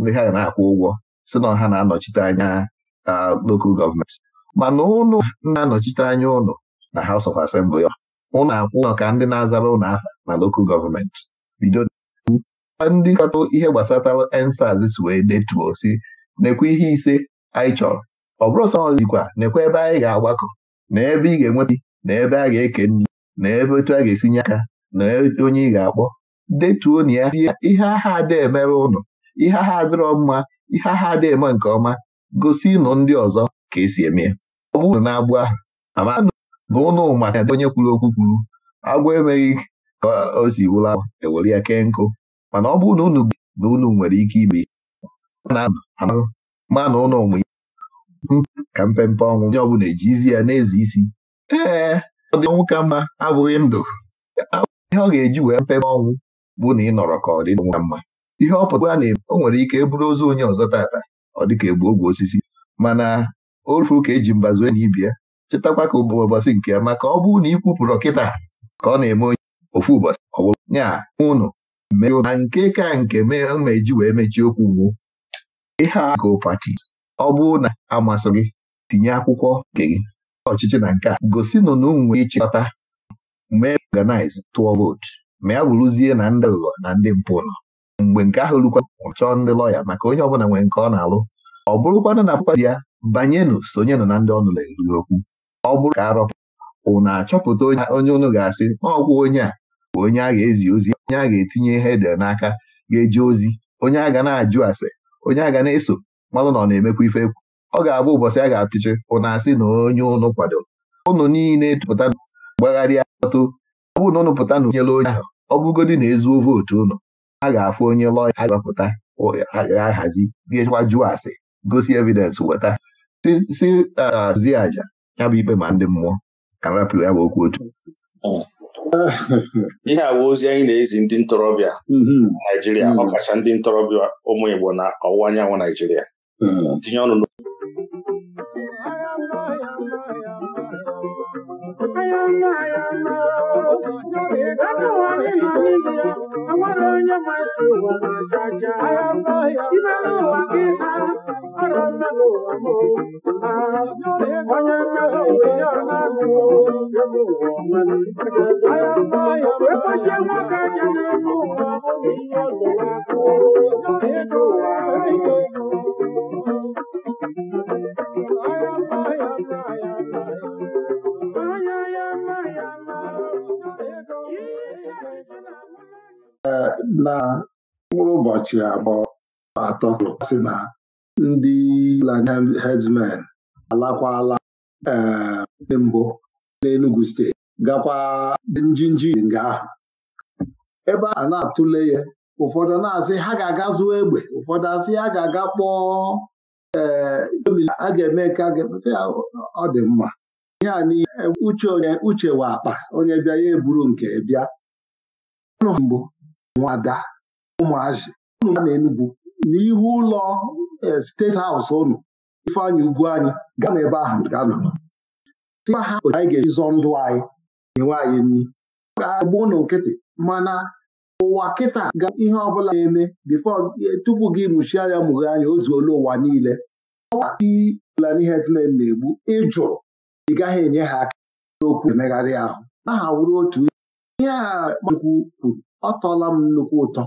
ndị ha na-akwụ ụgwọ si na ha na-anọchite anya lokal gọọmenti mana ụnụ na-anọchite anya ụnụ na House of Assembly ụnụ akwụ ụlọ ka ndị na-azara ụlọ aha na lokal gọọmenti bido ndị katọ ihe gbasatara ensaz si wee detuo si nekwe ihe ise anyị chọrọ ọ bụrụ sọ ọzikwa nekwe ebe anyị ga-agbakọ na ebe ị ga-enweta na ebe a ga-eke nri na ebe otu a ga-esinye aka na onye ị ga-akpọ detuo na ya ihe aha adị emere ụnụ ihe aha adịrọ mma ihe aha adị eme nke ọma gosi nụ ndị ọzọ ka esi eme ya ọ na-agbụ aha na ụnụ maka onye kwuru okwu kwuru agwọ emeghị ka o si wụla ewere ya kee nkụ mana ọ bụrụ na unu na unu nwere ike ime ma na ụlọ onwe ka mpempe ọnwụ onye ọbụla ejizi ya na-ezi isi ee ọ dị ọnwụ ka mma abụghị ndụ ihe ọ ga-eji wee mpempe ọnwụ bụ na ị nọrọ ka ọ dị ọnwụ ka mma ihe ọ pụtara na o nwere ike bụrụ ozu onye ọzọ tata ọ dịka egbu ogwe osisi mana ofu ka eji mbazu enyi bịa chetakwa ka bụ ụbọchị nke ya maka ọ bụrụ na ikwupụrụ kịta ka ọ na-eme onye ofu ụbọchị ọ bụrụ nya ụnụ mee na nke ka nke eji wee mechie okwu ugwu ihe a go pati ọ bụrụ na amasị gị tinye akwụkwọ nke gị ọchịchị na nke a gosinụ na ụmụ nwere ịchịkọta mee organize tụọ vootu ma ya bụrụzie na ndị ụlọ na ndị mpụ nọ mgbe nke ahụ rukwa chọọ ndị lọya maka onye ọbụla nwere nke ọ na-alụ ọ bụrụkwana na pati ya banyenụ sonyenụ na ndị ọnụla eruru okwu ọ bụrụ ka arọpụ ụnụ achọpụta onye ụnụ ga-asị ọgwụ onye a bụ onye a ga-ezi ozi onye a ga-etinye ihe ede n'aka ga-eji ozi onye a ga na-ajụ ase onye a ga na-eso mmadụ na ọ na-emekwa ife ekwu ọ ga-abụ ụbọchị a ga-atụchi ụnụ asị na onye ụnụ kwado ụnụ niile pụta gbagharịa atụ ọ bụ na ụnụ pụta na onyere onye ahụ ọ bụgodị na ezuo vootu ụnụ a ga-afụ onye lọya a ga ahazi ga jụọ ase gosi evidensị weta si aja ya bụ ibe ma ndị mmụọ ka m ya bụ okwu otu ihe a bụ ozi anyị na-ezi ndị ntorobịa mm-hmm. Naijiria mm-hmm. ọkacha ndị ntorobịa ụmụ Igbo na ọwụwa anyanwụ Naijiria mm-hmm. tinye ọnụ na mkpụrụ ụbọchị abụọ atọ sị na ndị Lanarịn Headsmen alakwala ee eh, mbụ n'Enugu steeti gakwa njinji nga ahụ ebe a na-atụle ya ụfọdụ na-asị ha ga-aga zụọ egbe ụfọdụ asị ha ga-aga kpọọ ee eh, a ga-eme ka aga ga-emesị ọ dị mma ihe a e, uche onye uche wa akpa onye bịa ya eburu nke bịa mbụ nwada ụmụazị na Enugwu n'ihu ụlọ e, steeti haụsụ unu ifeanyị ugwu anyị gaa n'ebe ahụ gaa nọ tịa ha otu anyị ga-eji zọọ ndụ anyị enwe anyị nri agba ụlọ nkịtị mana ụwa kịta ga ihe ọbụla na-eme bifo e, tupu gị mụchie anya mụghe anya ozu ole ụwa niile ọwa n'ihe herdsmen na-egbu ịjụrụ ị gaghị enye ha aka n'okwu emegharị ahụ aha wụrụ otu ihe a kwuru ọ tọọla m nnukwu ụtọ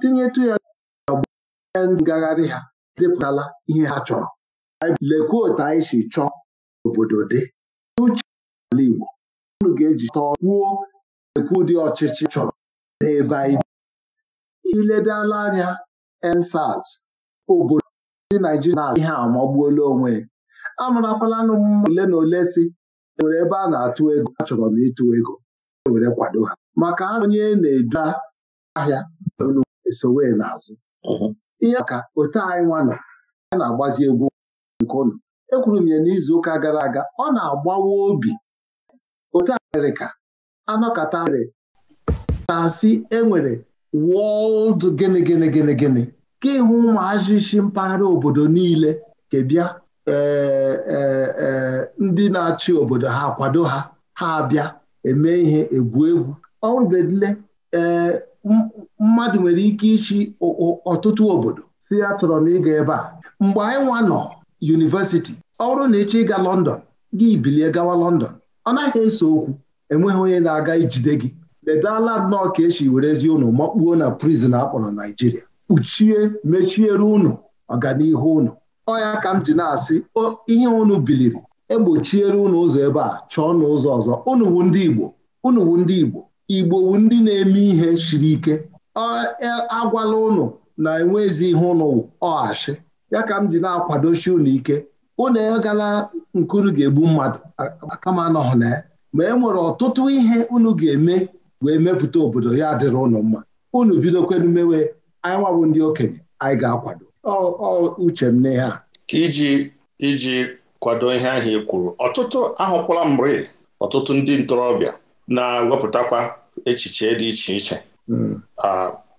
tinyetụ ya ngagharị ha depụtala ihe ha chọrọ lekwuo otu anyị si chọọ obodo dị n'uche ala Igbo unu ga-eji tọọ kwuo ekwu dị ọchịchị chọrọ n'ebe anyị iledala anya ensaz obodo ndị Naijiria na ihe amagbuola onwe anụ mmadụ ole na ole si nwere ebe a na-atụ ego achọrọ m ịtụ ego e were kwado ha maka ha onye na-edu ahịa esowe n'azụ ihe maka otu anyị nwa nọ ya na-agbazi egwu nke e ekwuru m ya n'izuụka gara aga ọ na-agbawa obi otu Amerịka anọkọta rị na-asị enwere wọld gịnị gịnị gịnị gịnị ka ịhụ ụmụazị isi mpaghara obodo niile kebịa e, e, e, ndị na-achị obodo ha kwado ha ha abịa eme ihe egwu egwu ọrụbedile ee mmadụ nwere ike ịchị ọtụtụ obodo si ya chọrọ m ịga ebe a mgbe anyị nwa nọ yunivesiti ọ bụrụ na ịchọ ịga Lọndọn gị bilie gawa Lọndọn, ọ naghị eso okwu enweghị onye na-aga ijide gị ledala nnọọ ka esi werezi ụnụ makpuo na prizin akpọrọ Naijiria kpuchie mechiere ụnụ ọganihu ụnụ ọya ka m ji na-asị ihe ụnụ biliri egbochiere ụnụ ụzọ ebe a chọọ ụnụ ụzọ ọzọ ụnụ wu ndị Igbo ụnụ ndị Igbo igbo ndị na-eme ihe siri ike e, agwala ụnụ na enwezi ihe ụnụ ọghachi ya ka m ji na-akwadochi ụnụ ike ụnụ egala unu ga-egbu mmadụ kama anọghị na ya ma e nwere ọtụtụ ihe unu ga-eme wee mepụta obodo ya dịrị ụnụ mma unu bidokwenu mewe anyị nwabụ ndị okenye anyị ga-akwado uche m n'ihe a iji iji kwado ihe ahụ ị kwuru ọtụtụ ahụkwala mgbe ọtụtụ ndị ntorobịa na-ewepụtakwa echiche dị iche iche hmm.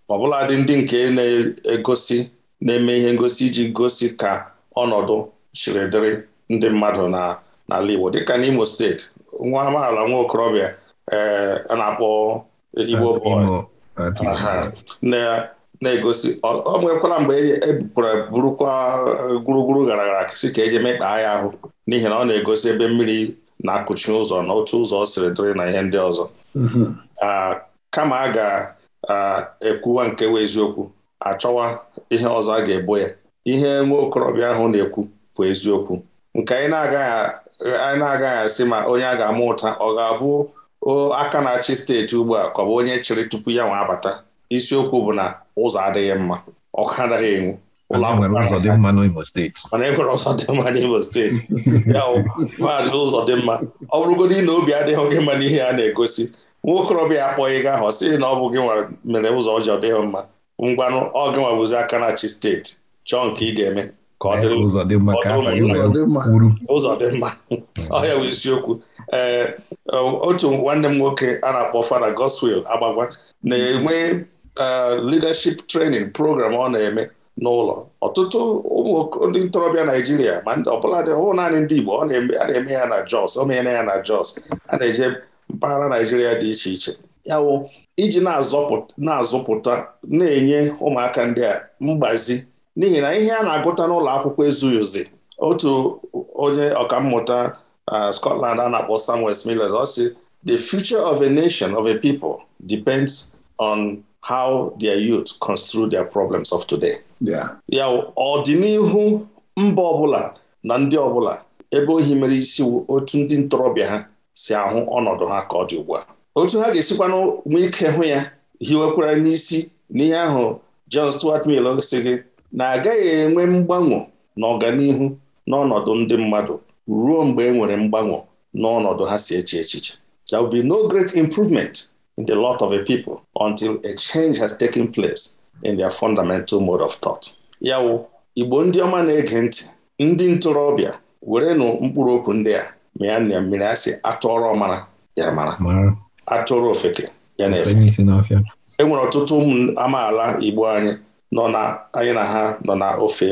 ọbụladị ndị nke na-egosi na-eme ihe ngosi iji gosi ka ọnọdụ chiri dịrị ndị mmadụ na n'ala Igbo dịka n'Imo steeti nwa amaala nwa okorobịa ee a na-akpọ Igbo na-egosi ọ nwekwara mgbe ebupụrụ e burukwa e, gburugburu gara gara si ka eji mekpaa ya ahụ n'ihi na ọ na-egosi ebe mmiri na-akụchi ụzọ na otu ụzọ siri dịrị na ihe ndị ọzọ mm-hmm. kama a ga-ekwuwa nke wee eziokwu achọwa ihe ọzọ a ga-ebo ya ihe nwa okorobịa ahụ na-ekwu bụ eziokwu nke anyị na-agaghị asị ma onye a ga-ama ụta ọ ga-abụ aka na-achị steeti ugbu a ka ọ bụ onye chịrị tupu ya nwa abata isiokwu bụ na ụzọ adịghị mma ọkụ anaghị enwu mana enwere e ụzọ dị mma n'Imo steeti ya maazị ụzọ dị mma ọ bụrụgodị na obi adịghị gị mma n'ihe a na-egosi nwokorobịa akpọghị gị ahụ ọ sịrị na ọ bụ gị mere ụzọ ọjọọ dịghị mma ngwanụ ọ gị nwa bụzi aka na chi steeti chọọ nke ị ga-eme ka ọ ụzọ dị mma ọhịa bụ isiokwu ee otu nwanne m nwoke a na-akpọ Fada Goswill Agbagwa na-enwe e, leadership training program ọ na-eme n'ụlọ ọtụtụ ụmụ ndị ntorobịa Naijiria ma ọbụla naanị ndị Igbo a na-eme ya na Jos o na ya na Jos a na-eje mpaghara Naịjirịa dị iche iche ya iji na-azụpụta na-enye ụmụaka ndị a mgbazi n'ihi na ihe a na-agụta n'ụlọ akwụkwọ ezughị uzi otu onye ọkammụta Scotland a na-akpọ Sam Westmillet ọ sị the future of a nation of a people depends on how their youth construe their problems of today. ya ọdịnihu mba ọbụla na ndị ọbụla ebe ohi mere isi otu ndị ntorobịa ha si ahụ ọnọdụ ha ka ọ dị ugbu a otu ha ga-esikwanụ nwee ike hụ ya hiwekwara n'isi n'ihe ahụ John Stuart Mill si gị na agaghị enwe mgbanwe na ọganihu n'ọnọdụ ndị mmadụ ruo mgbe e nwere mgbanwe n'ọnọdụ ha si eche echiche there will be no great improvement in the lot of a people until a change has taken place in their fundamental mode of thought yawo Igbo ndị ọma na-ege ntị ndị ntorobịa werenụ mkpụrụ okwu ndị a mịa nne mmiri asị atụọrọ ọmara ya mara atụrụ ofeke ya na-efe e nwere ọtụtụ ụmụ amaala Igbo anyị nọ na anyị na ha nọ na ofe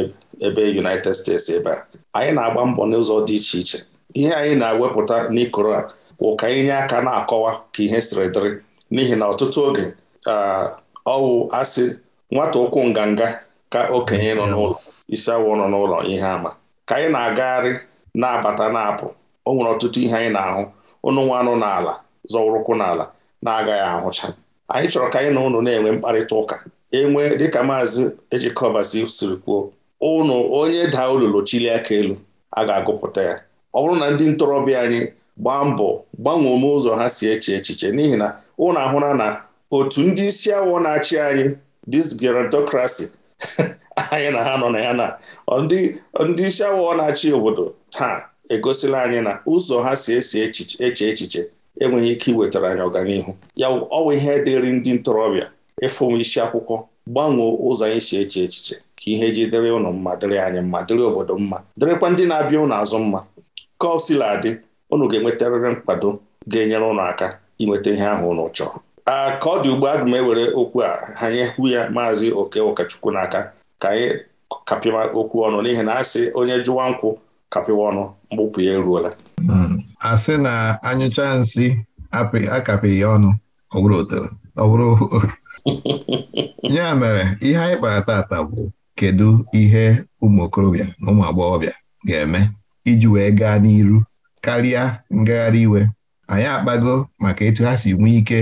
ebe United States ebe a anyị na-agba mbọ n'ụzọ dị iche iche ihe anyị na-ewepụta n'ikoro a bụ ka anyị nye aka na-akọwa ka ihe siri dịrị n'ihi na ọtụtụ oge ọwụ asị nwata ụkwụ nganga ka okenye nọ n'ụlọ isi awọ nọ n'ụlọ ihe ama ka anyị na-agagharị na-abata na-apụ o nwere ọtụtụ ihe anyị na-ahụ ụnụ nwa anụ n'ala zọwụrụkwụ n'ala na-agaghị ahụcha anyị chọrọ ka anyị na ụnụ na-enwe mkparịta ụka enwe dịka maazị ejikọbasi siri kwuo ụnụ onye daa olulu chilie aka elu a ga-agụpụta ya ọ bụrụ na ndị ntorobịa anyị gbaa mbọ gbanwee ome ụzọ ha si eche echiche n'ihi na ụnụ ahụra na otu ndị isi awọ na-achị anyị dis anyị na ha nọ na ya na ndị isi awọ na-achị obodo taa egosila anyị na ụzọ ha si esi eche echiche enweghị ike iwetara anyị ọganihu ya ọwa ihe dịrị ndị ntorobịa ịfụ isi akwụkwọ gbanwee ụzọ anyị si eche echiche ka ihe ji dịrị ụnụ mma dịrị anyị mma dịrị obodo mma dịrịkwa ndị na-abịa ụnụ azụ mma ka ọ sila adị ụnụ ga-enwetarịrị nkwado ga-enyere ụnụ aka inweta ihe ahụ ụnụ chọrọ a ka ọ dị ugbu a m ewere okwu a anyị hụ ya maazị oke ụkọchukwu n'aka ka anyị kapịa okwu ọnụ n'ihi na sị onye jụwa nkwụ kapịwa ọnụ mgbụpụ ya eruola hmm. Asị na anyụcha nsị akapịghị ọnụ ọ ya mere ihe anyị kpara tata bụ kedu ihe ụmụ okorobịa na ụmụ agbọghọbịa ga-eme iji wee gaa n'iru karịa ngagharị iwe anyị akpago maka etu ha si nwee ike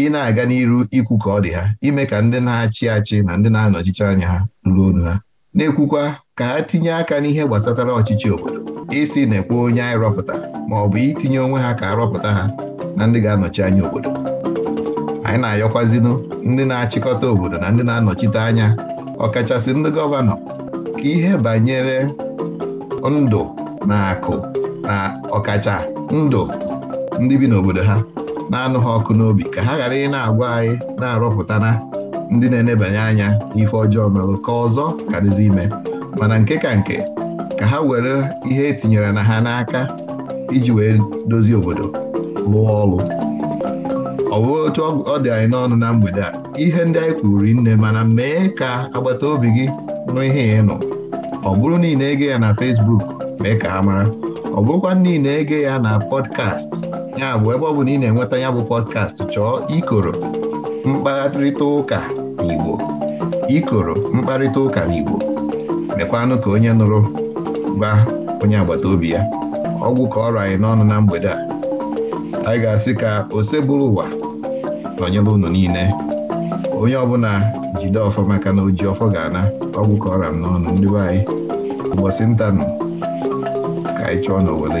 ị na-aga n'iru ikwu ka ọ dị ha ime ka ndị na-achị achị na ndị na-anọchicha anya ha ruru onu ha na-ekwukwa ka ha tinye aka n'ihe gbasatara ọchịchị obodo isi na-ekwe onye anyị rọpụta ma ọ bụ itinye onwe ha ka arọpụta ha na ndị ga-anọchi anya obodo anyị na ayọkwazinụ ndị na-achịkọta obodo na ndị na-anọchite anya ọkachasị ndị gọvanọ ka ihe banyere ndụ na akụ na ọkacha ndụ ndị bi n'obodo ha na-anụ ha ọkụ n'obi ka ha ghara ị na-agwa anyị na-arọpụtana ndị na-enebanye anya ife ọjọọ merụ ka ọzọ karịzi ime mana nke ka nke ka ha were ihe etinyere na ha n'aka iji wee dozie obodo lụọ ọrụ ọbụ otu ọ dị anyị n'ọnụ na mgbede a ihe ndị anyị kwuru nne mana mee ka agbata obi gị nụ ihe ị nọ ọ bụrụ niile na-ege ya na Facebook mee ka ha mara ọ bụrụkwa na ege ya na pọdkast ya bụ ebe ọ bụ na ị na-enweta ya bụ pọdkast chọọ ikoro mkparịta ụka n'Igbo ikoro mkparịta ụka n'Igbo mekwanụ ka onye nụrụ gba onye agbata obi ya ọgwụ ka ọrụ anyị n'ọnụ na mgbede a anyị ga-asị ka ose bụrụ ụwa nọnyere unu niile onye ọbụla jide ọfọ maka na oji ọfọ ga-ana ọgwụ ka ọra m n'ọnụ ndị be anyị ụbọchị ntanụ ka anyị chọọ na Owele